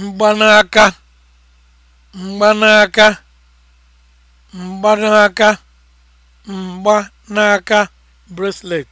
mgbanaka mgbanaka mgbanaka mgbanaka bracelet